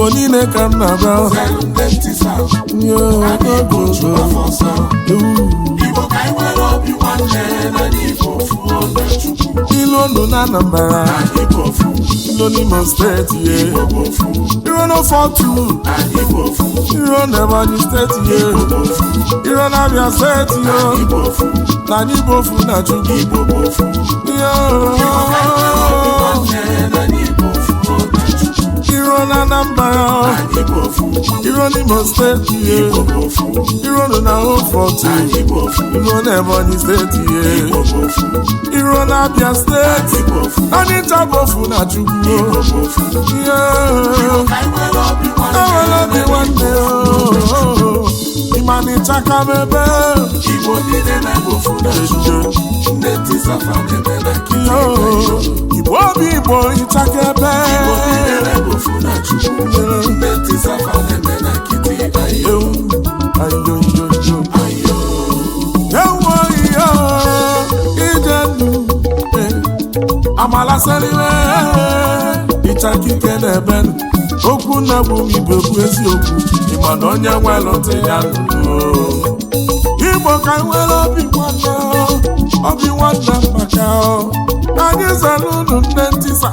Igbo niile ka m na-abịa e ilu ndụ na Anambra ilu steeti ye iro iro steeti ye iro steeti na ofu na Chukwu na Anambra iro n'Imo steeti ihe iro na Hofort iro na Ebonyi steeti ihe iro na Abia steeti Onitsha ofu na Chukwu ihe enwere obi nwanne ịmanịchaka oh. na ebe gbasara iwe ịchaka ike na ebe okwu nna bụ ibe okwu eziokwu na onye nwe nwelụta ya igbo ka nwere obi nwanne obi nwanna maka ka anyị zere unu nne ntisa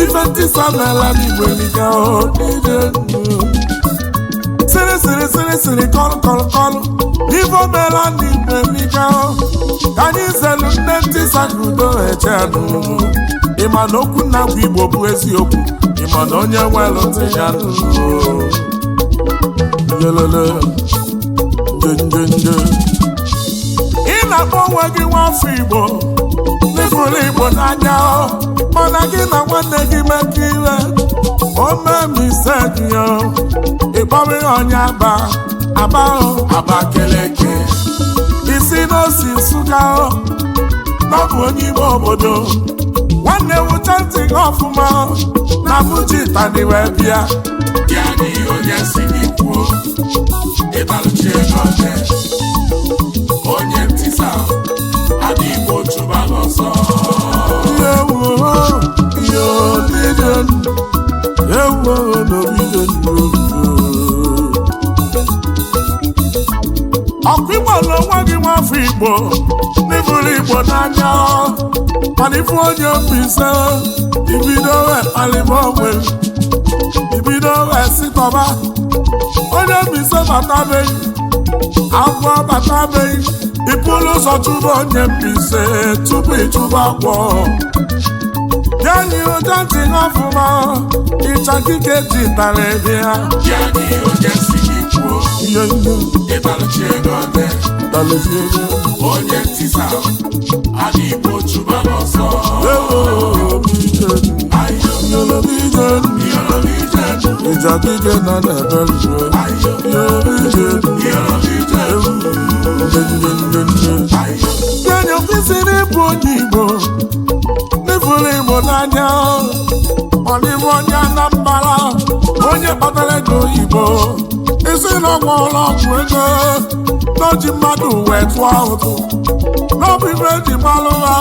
ife ntisa n'ala n'igbo liga sịrị sịrị sịrị sịrị kọlụ kọlụ kọlụ ife mela n'igbo liga ka anyị zere nne ntisa ka udo eche n'ụlọ ịma na okwu na igbo bụ eziokwu ịma na onye nwere ntị ya ị na-akpọ onwe gị nwafọ igbo n'ịhụrụ igbo n'anya mana gị na nwanne gị mekọ ire omemiseya ịkpọrọ ihe onye aba aba aba keleke isi n'osi nsụga ọ bụ onye ime obodo na-ewute ntị gị ọfụma na mụji tani wee bịa ya na onye si gị kwuo n'oche onye ntịsa ọsọ ọkụ igbo na onwe gị nwafọ igbo hụrụ Igbo n'anya mana onye mbize ibido alịba onwe ibido esitọba onye mbise batabeghị batabeghị ịpụrụ ụzọ chụba onye mbize tupu ịchụba akwọ ya na ihe ụja ntịghị ọfụma ịcha kike ji tara ebe ha mezie onye ntisa adị igbo chụba n'ọsọ ịjadije na na-ebe rue onye kwesịrị ịbụ onye igbo n'ifuru igbo n'anya ọdịbụ onye Anambra onye kpatara ego oyibo isi n'ọgbọ ọgwụọla ego n'oji mmadụ wee tụọ ụtụ n'ọbụ ibe eji malụ ha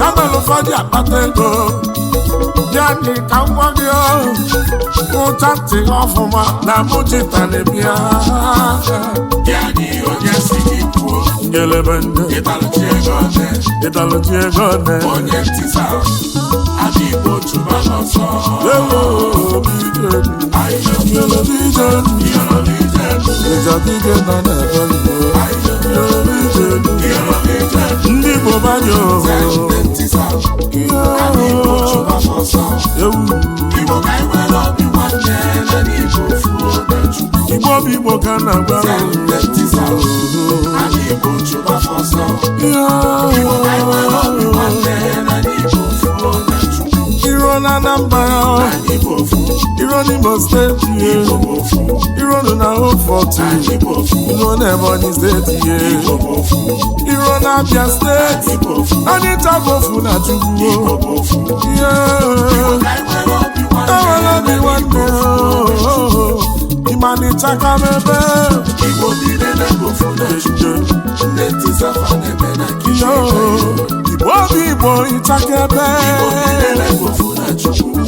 ya mere ụfọdụ akpata ego ya dị ka ngwa gị ụcha ntị ọfụma na mụchita na-ebia ngelebe ndị ịtalụchi ego ọdị ndị Igbo badị Igbo bụ Igbo ka na-agba ọzọ. on Imo State, yeah. You run on home for two. You run Ebonyi State, yeah. You run Abia State. And it's a bofu na chugu. Yeah. I wanna be one more. Imani chaka mebe. Igbo bi nene bofu na chugu. Neti safa nebe na kishu. Igbo bi bo ichaka ebe. Igbo bi nene bofu na chugu.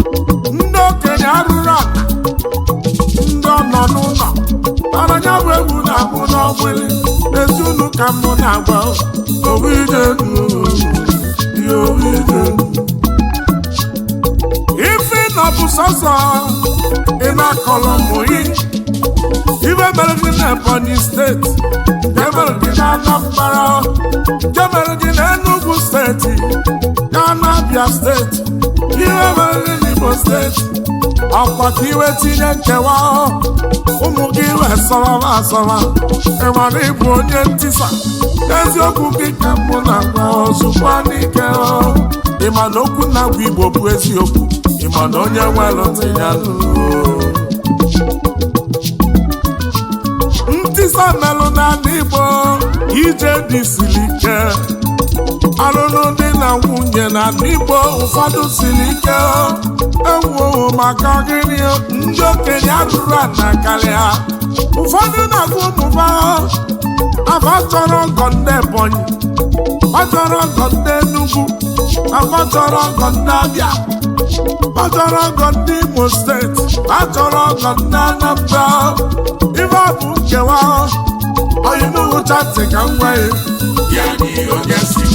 ọgbụlị ezi unu ka m na-agba ife nọ bụ sọsọ ị na-akọlọ mụyi ibe mere gị na Ebonyi steeti jemere gị na Anambra jemere gị na Enugu steeti na Abia steeti ibe mere gị na Igbo steeti ọkwa ka iwe tinye nkewa ụmụ gị wee asọrọ ị ịmara ịbụ onye ntisa eziokwu gị ka mbụ na agwa ozugbo n'ike ma na okwu na-agwa igbo bụ eziokwu ma na onye nwere tinye ntisa melụ n'ala igbo ije dị siri ike alụlụ di na nwunye na n'Igbo ụfọdụ siri ike ewuowo maka gịnị ndị okenye atụrụ ana karịa ụfọdụ na-agụ ụmụba afa chọrọ ọgọ ndị Ebonyi ọchọrọ ọgọ ndị Enugu achọrọ ọgọ ndị Abịa achọrọ ọgọ ndị Imo steeti achọrọ ọgọ ndị Anambra ife ọ bụ nkewa onye n'ugwu ka m nwee ya n'ihi oge si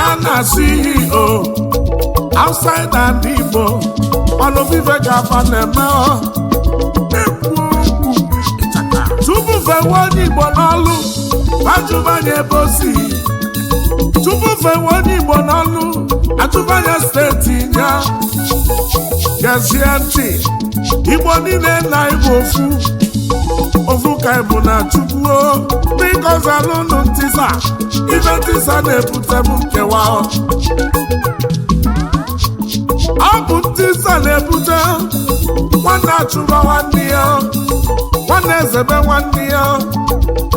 Ghana CEO, outside and Igbo, Olubife Gavana eme ekwu okwu tupu fewe onye Igbo n'ọlụ ajụbanye ebe o si tupu fewe onye Igbo n'ọlụ ajụbanye steeti ya gezie ntị Igbo niile na Igbo ofu ovuka bụ na chukwuo biko zalụnụ ntisa ibe ntisa na-ebutebu ebute nkewa ọ bụ ntisa na-ebute nwanne achụba nwanne ya nwanne ezebe nwanne ya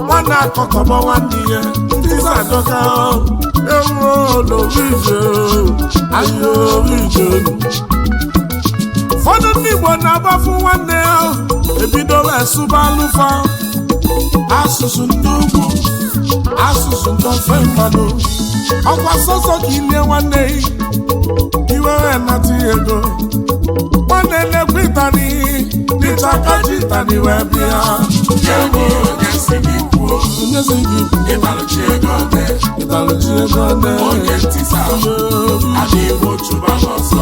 nwanne akọkọba nwanne ya ntisa adọka ewuo ahịa ụfọdụ ndị Igbo na-agbafu nwanne ya ebidola esuba alufa asụsụ ndị ugwu asụsụ ndị ofe mmanụ ọkwa sọsọ ka ilie nwanne iwere nata ego nwanne na-ekwe ịtani dịta aka ji ịtani wee bịa onyezi gị ịtalụchi ego ne ịtalụchi ego ne onye ntị sa adịghị otu ba n'ọsọ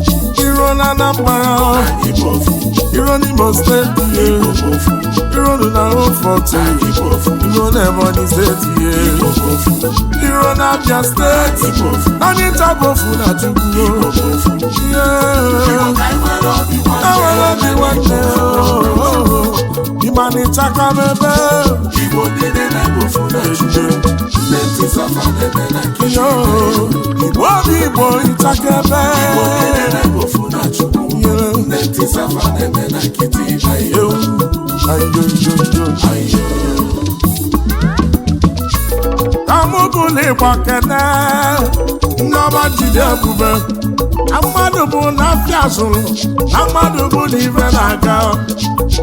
na na Anambra Iro n'Imo steeti eh. Iro na Oforte eh. Iro na Ebonyi steeti eh. Iro na Abia steeti Anyị na Chukwu Enwere e obi nwanne Ịmanịchaka mebe Igbo niile na Igbo obi Igbo ịchaka ebe safa na-eme na kene nneọma jide ebube na mmadụ bụ na afịa zụrụ na mmadụ bụ na ibe na-aga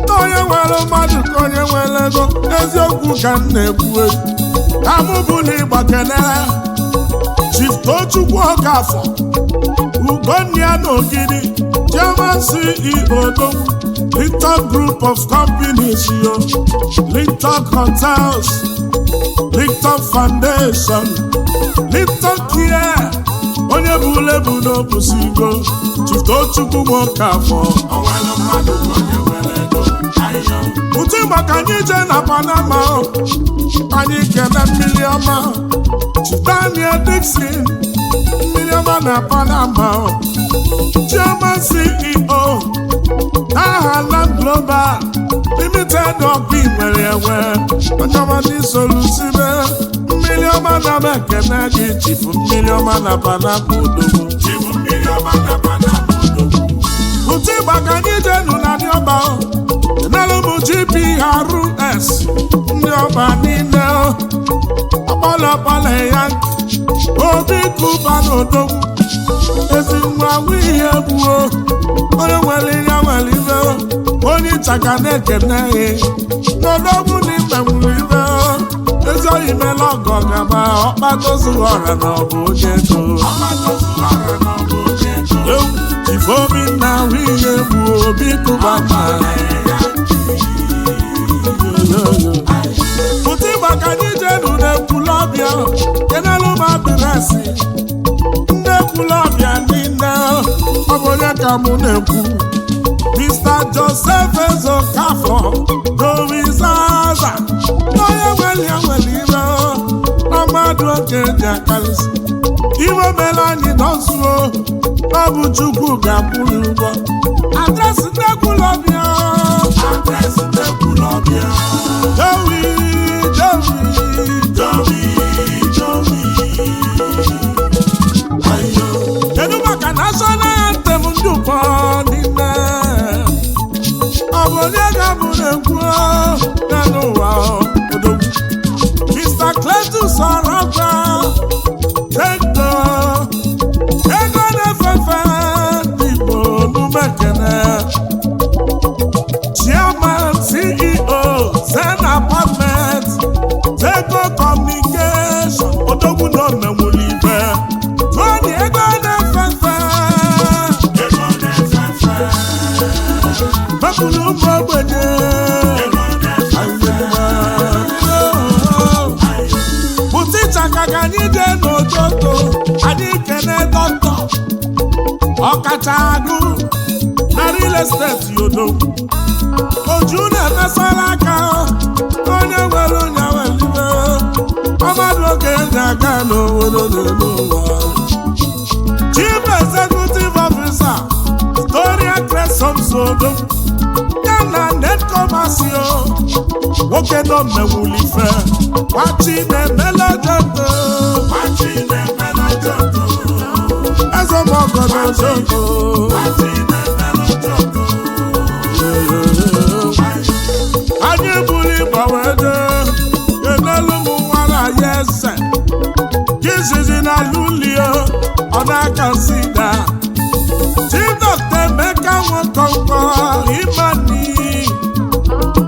na onye nwere mmadụ ka onye nwere ego eziokwu ka m na-ekwu tamụbụligba kene Chief Tochukwu Okafọ Ugonna na Ogidi Chairman CEO Dowu, Lintak Group of Companies yo, Lintak Hotels, Lintak Foundation, Lintak Care, onye bụ lebu n'obusigo, Chiftochukwu nwoke afọ. Utu maka anyị jee na Panama, anyị kene mmiri ọma, Daniel Dixon. mmiri ọma na Panama Chairman CEO aha Land Global Limited ọkụ inwere enwe ọjọmadị solusibe mmiri ọma na mekene gị chifu mmiri ọma na Panama odogwu ụtụ ịgba ka anyị jenu na dịọba enelụmụ GPRS ndị ọba niile ọkpọlọ ọkpọlọkpọlọ ya nke obi kụba n'odogwu ezi nwa ihe gbuo onye nwere ihe nwere ibe onye ịchaka na-ekene n'odogwu na ibe nwere ibe ezi oyi mela ọgọ gaba ọkpatozughị ọra na ọ bụ onye ego ifeobi na ahụ ihe gbuo obi kụba mma adịrasị nne kwula ọbịa niile ọ bụ onye ka mụ na-ekwu Mr. Joseph Ezokafọ dorizaza onye nwere ya nwere ire na oke ji akarịsị iwe mere anyị ọ bụ Chukwu ga-akwụrụ ụgwọ adresị nne kwula ọbịa National anthem ndị ụfọdụ ime ọ bụ onye ga-abụrụ na n'ụwa odogwu Mr. bụtịchaka ka anyị jee n'ototo anyị kene dọkịta ọkacha agụ na real estate yodo oju na-emesara aka onye nwere ụnyaahụ mmadụ oge na-aga n'obodo n'elu ụwa chief executive officer Gloria Cresson Sodo ya na netcomasi nwoke nọ mmewulife gbachi na-emelejede ezemọgọ na ezogo anyị buru ịgba wee dee enelu m nwara ya eze jizizi na lulio ọ na-aka sida Chinọkta Emeka Nwokọnkọ Imani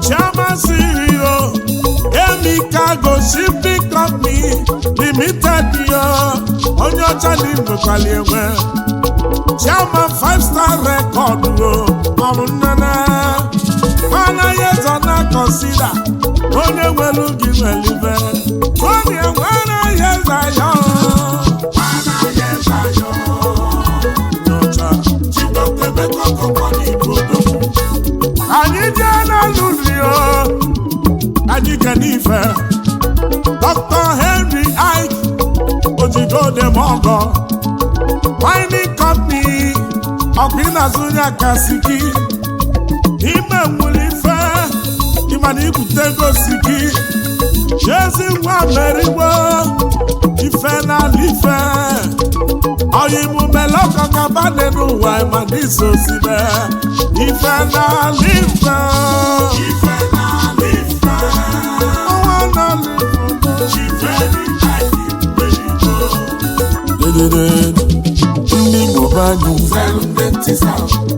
Chioma CEO Emikago Shipping ni Limited yo onye ọcha na inwekwali enwe Chairman Five Star Record o ọrụ nnene anaghị ezo na akọsịda onye nwere gị nwere ibe onye nwere ihe zaya anyị jee n'alụlụ ya anyị kenife Dr. Henry Ike ojidodemọgọ mining company ọkụ ịna-azụnye kasiki ime nwere ife ịmana ibute gosiki chezi nwa merigbo ife n'ala ife oyimumelekọkabadị n'ụwa ma n'iso sibe ife n'ala ife ife n'ala ife ndị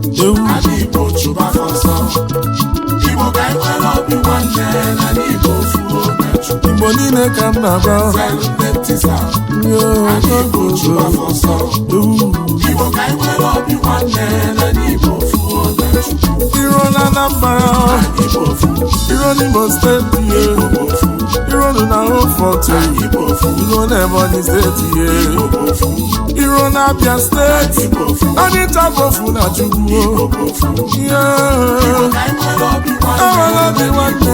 chineke m na-agba iro na Anambra iro n'Imo steeti ihe iro na Hofọtụ iro na Ebonyi steeti ihe iro na Abia steeti onye tabofu na Chukwu ihe enwere obi nwanne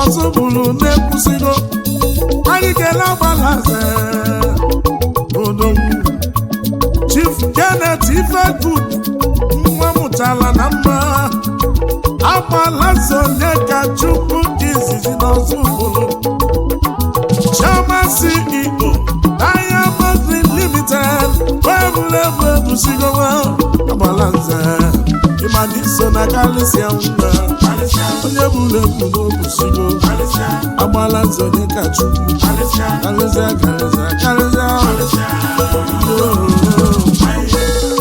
ọzọ bụrụ na-ekwusigo adịkela gbalaze odogwu Chief Janet Ifegood nwa mụtara na mma agbalaze onye ka Chukwu dị izizi n'ọzọ bụrụ Chioma CEO Diamond Limited weebụlebụ eduzigowa agbalaze ma dị na kalisia mma onye bụrụ ebu n'obusigo agbala nze onye ka chukwu karịsịa karịsịa karịsịa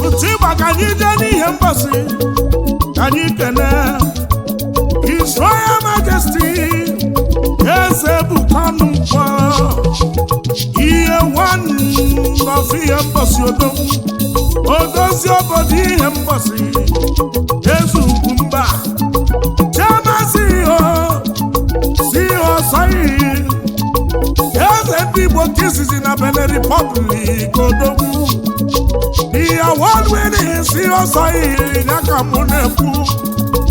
otu ịgba ka anyị jee n'ihe mgbasị ka anyị kene His Majesti, eze bụ kanụ mkpọ ihe nwanne ngọzi ihe mgbasi odo odozi obodo ihe mgbasi eze ugwu mba chiamasi ihe si ihe ọsọ iyi eze ndị igbo nke izizi na Benin Republic odogwu ihe wadwere si ọsọ iyi ya ka mụ na-ekwu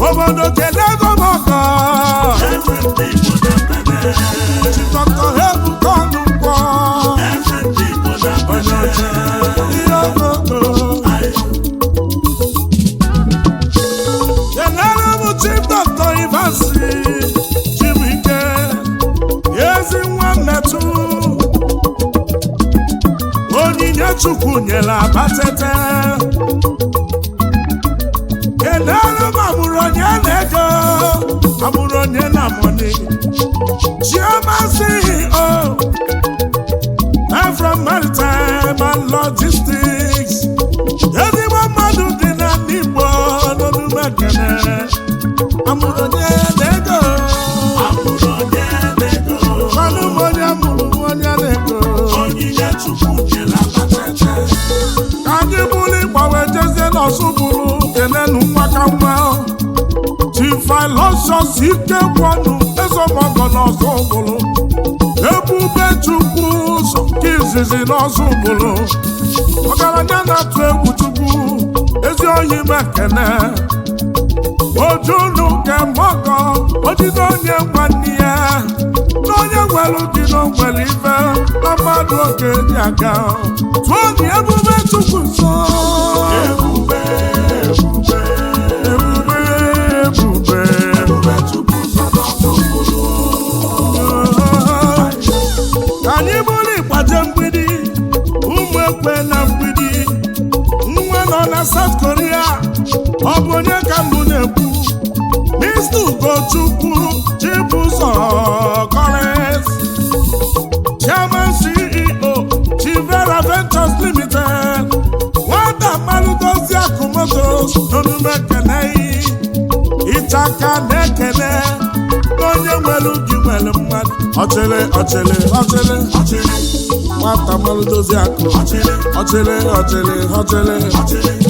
obodo kedu ego m ọkọ ọsụbụrụ kenenu nwakakwa chifilosios ikekwanụ ezemọgọna ọsụbụrụ ebube chukwu ụzọ nke izizi na ọsụbụrụ ọgaranya na-atụ egwu chukwu ezi ohi mekene ojunu nke mgbakọ ojide onye nwanne ya na onye nwere dị n'ogwere ibe na mmadụ oge dị aga tụọ dị ebube chukwu nsọ ebube ebube ebube ebube anyị bụrụ ịkpaje mgbidi ụmụ ekwe na mgbidi nwe nọ na South Korea ọ bụ onye ka mbụ na-ekwu Mr. Ugochukwu Chibuzọ Collins Chairman CEO Chivera Ventures Limited nwata mmanụ dozi akụ motos n'omume keneyi ịchaka na-ekele onye nwere ubi nwere mmadụ ọchịrị ọchịrị ọchịrị ọchịrị nwata mmanụ akụ ọchịrị ọchịrị ọchịrị ọchịrị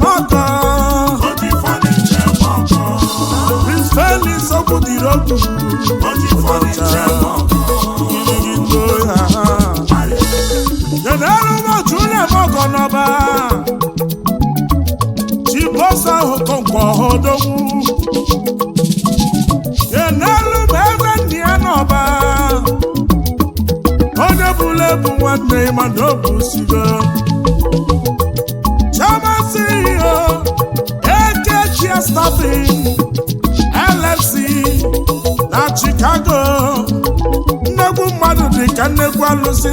What you want to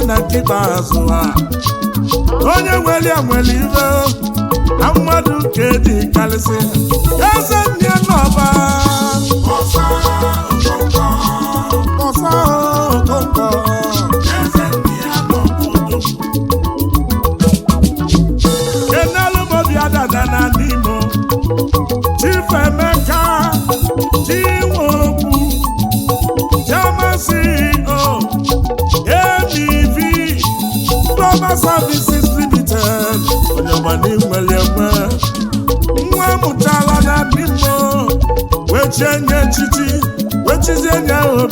na nkịta azụ ha onye nwere nwere ibe na mmadụ nke dị karịsị eze nne n'ọba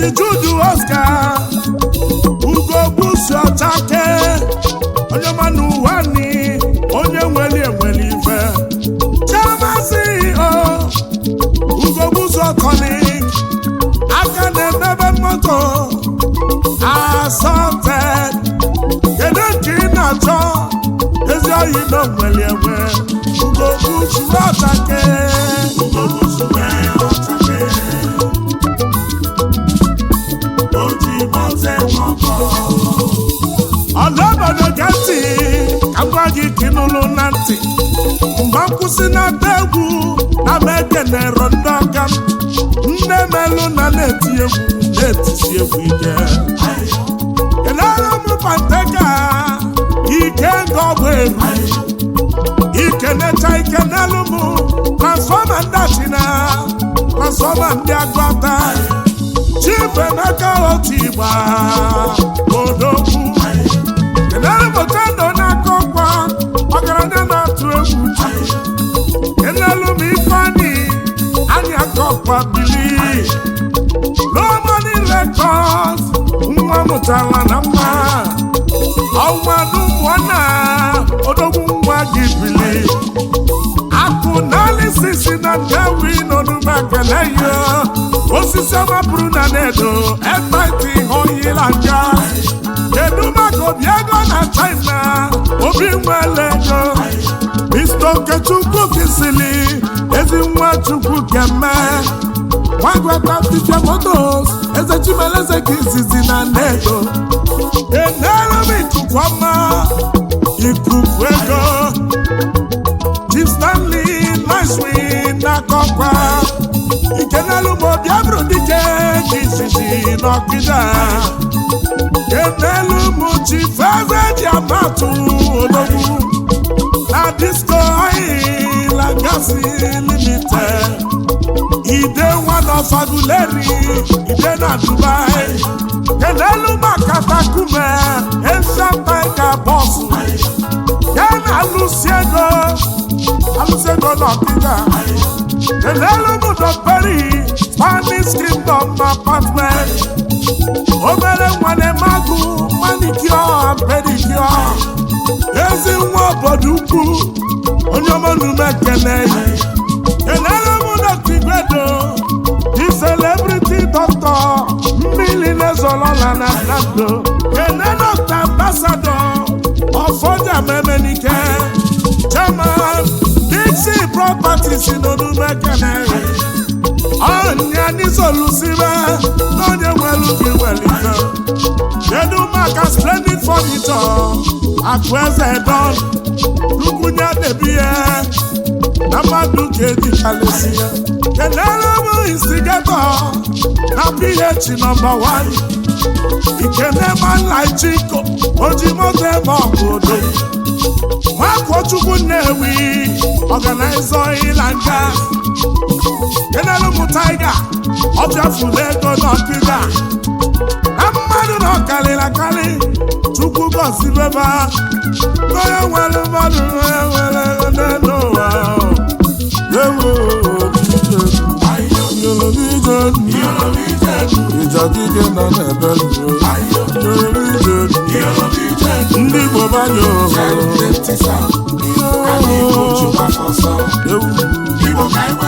Ezi Jude Oscar ugo busu ọchake onye ma n'ụwa ni onye nweli enweli ife chemasi o ugo busu ọkọni aka na-emebe moto asọte kedu nke ị na-achọ ezi oyi na nweli enwe ugo busu ọchake ọtụtụ si n'ata egwu na mekenero ndị ọka nne melụ na na-eti egwu na-etisi egwu ike kedara m pateka ike nga ọgwụ Ike ikenecha ike n'elu mụ na transfọma ndị achina transfọma ndị agụata chifemeka otu igba odogwu kedara m otendo akwa bili n'ọmọdụ rekọd nwa mụtara na mma ọmadụ pụọ na odogwu nwa gị bili akụ n'alisisi na ndewi n'ọdụba kele yo osisi ọmapụrụ na nedo ebaiti hoyila nja kedu maka obi ego na china obi nwele ego Mr. Okechukwu kisili ezi nwa Chukwu keme nwagwata Fifa Motos eze Chimeleze izizi na nnedo enere m ikuku ọma ikuku ego Chief Stanley Nicewin n'akọkwa ikenelu bụ obi abụrụ dike ka izizi n'ọkịda enelu m Chief Eze ji amatụ disco oil and gas limited e dey one of aguleri e dey na dubai kenelu makatakume enshampeka bọsụ ya na alụsiego alụsiego n'ọkịda kenelu peri spanish kingdom apartment obere nwane magụ manicure pedicure ezi nwa obodo ukwu onye ọma nnume ekene enere m dọkta igwedo di celebrity doctor mmiri na-ezolola na nando ene dọkta ambasado ọfọja memenike chairman dixi properties n'onume ekene ọnya n'isolusibe n'onye nwere ubi welite kedu maka splendid furniture akụ eze na na mmadụ ka ejichalesi ya kenere bụ na ph nọmba 1 ikenemanlaijiko ojimoto ebe ọbụdo nwakochukwu nnewi ọganaiza ịla nga kenelu m taiga ọ na ego n'ọkịda na mmadụ na ọkarịrị akarị chukwu gọzibeba onye nwere mmadụ nwere nwere n'elu ụwa ewu ijadike nọ n'ebe ndị Igbo banye ohere